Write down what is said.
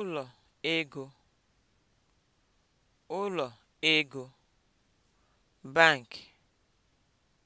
ụlọ ego ụlọ ego bank